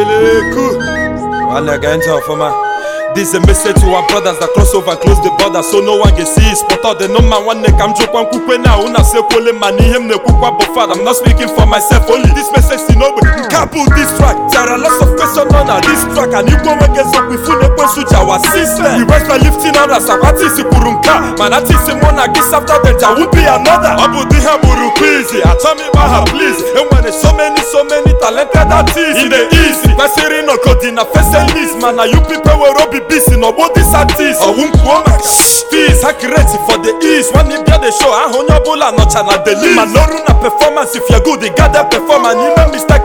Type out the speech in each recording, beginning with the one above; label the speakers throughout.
Speaker 1: Eleku Nwanne gee ntị ọfụma This is a message to our brothers that cross over and close the border so no one can see spot all the number nwanne ka m jụkwa nkwukwe na ahụ na-asekwole ma na ihe m na-ekwukwa bụ fada I'm not speaking for myself only this message si n'ogbe nke a this track there are lots of questions on this track and igwe nwoke eziokwu ifu na-ekwensu ji wa system the west by lifting others agwa tisi kwuru nke a mana tisi mụ na gị after them there won't be another ọ bụ di ha bụrụ kwizi achọ m ịgba ha please enwere so many so many talented artist e dey easy kwesịrị ịnọgodi na fese list mana you people were obi busy n'ọgbọ dis artist ọwụ mkpuo maka fees ha create for the east when e bịa the show ahụ onye ọbụla nọcha na the list mana ọrụ na performance if you good gather performance and ime mistake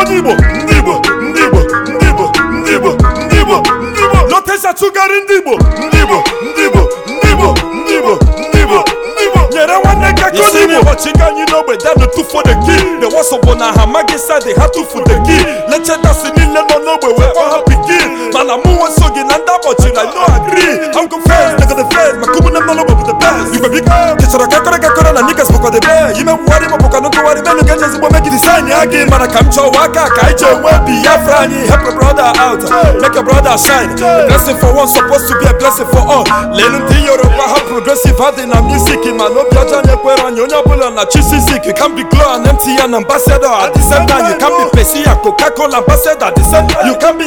Speaker 1: onye Igbo ndị Igbo ndị Igbo ndị Igbo ndị Igbo ndị Igbo ndị Igbo lọtesa tụgharị Ndibo Igbo ndị Igbo ndị Igbo ndị Igbo ndị Igbo ndị Igbo ndị Igbo nyere nwanne ka ka ndị Igbo chiga anyị n'ogbe danụ tụfuo the key the wasọ bụ na ha amaghị sadị ha tụfu the key lechetasị n'ogbe wee kpọ ha pikin mana mụ nwe so gị na ndị akpọchiri I no agree I'm confessed, nigga the feds, my kubu na mmanụ bụ the best Igwe biko kechara kakọrọ kakọrọ mana niggas bụkwadebe imewugharị mapụka na ntụgharị menu ga eji ezigbo megidi sain ya gị mana ka m chọwa aka ka anyị ji enwe biafra anyị help your brother out make your brother shine a blessing for one supposed to be a blessing for all lelu ndị yoruba ha progressive ha dị na music mana obi ọjọọ anyị anyị onye ọbụla na chisizik can be glow and mtn ambassador at the same time you can be coca cola ambassador at the same time onye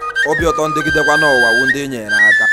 Speaker 1: obi ụtọ ndị gidekwa n'ụwa wu ndị nyere aka